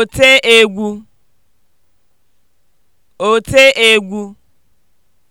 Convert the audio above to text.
oteegwu oteegwu